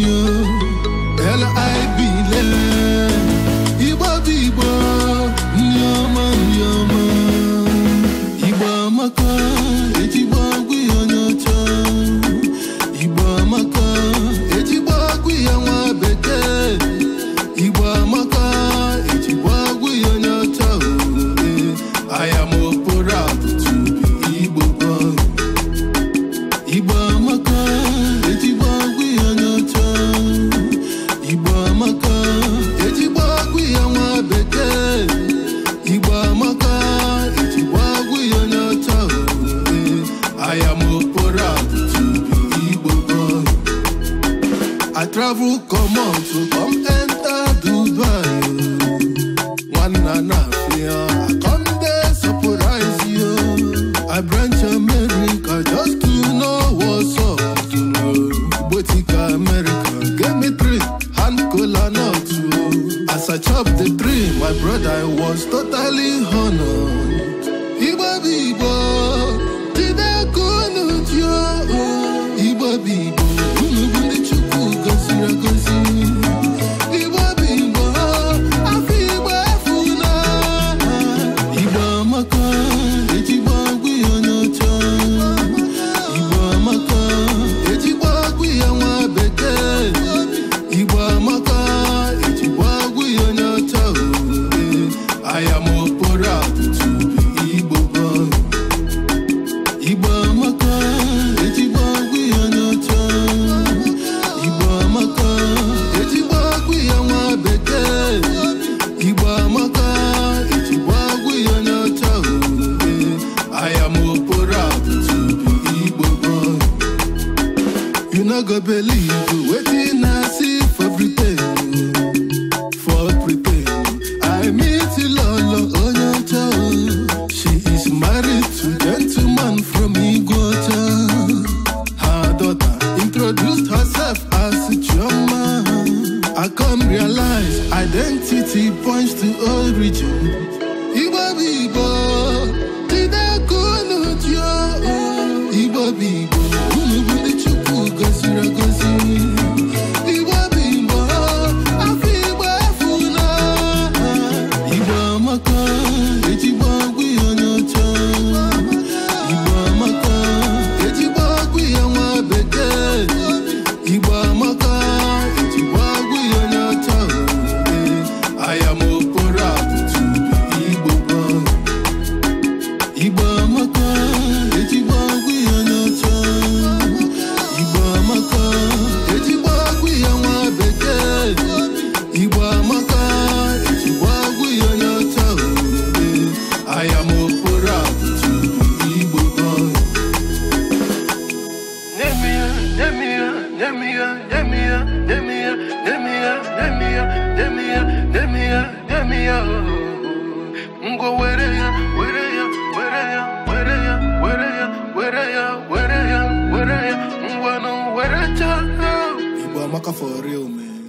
you I am Opora to be Igbo boy. I travel come on to come enter Dubai. One and a half year, I come there surprise you. I bring no go believe waiting i see for pretend for pretend. i meet ilolo onyocha she is married to gentleman from igwota her daughter introduced herself as Choma. i come realize identity points to origin Demia, Demia, Demia, Demia, Demia, Demia, Demia, Demia. Go where are you? Where are you? Where are you? Where are you? Where are you? Where are you? Where are you? Where are you? Where are you? Where are